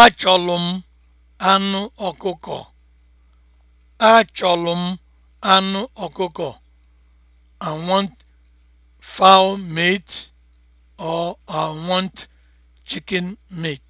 Achọlụ m anụ ọkụkọ. Achọlụ m anụ ọkụkọ. I want fowl meat or I want chicken meat.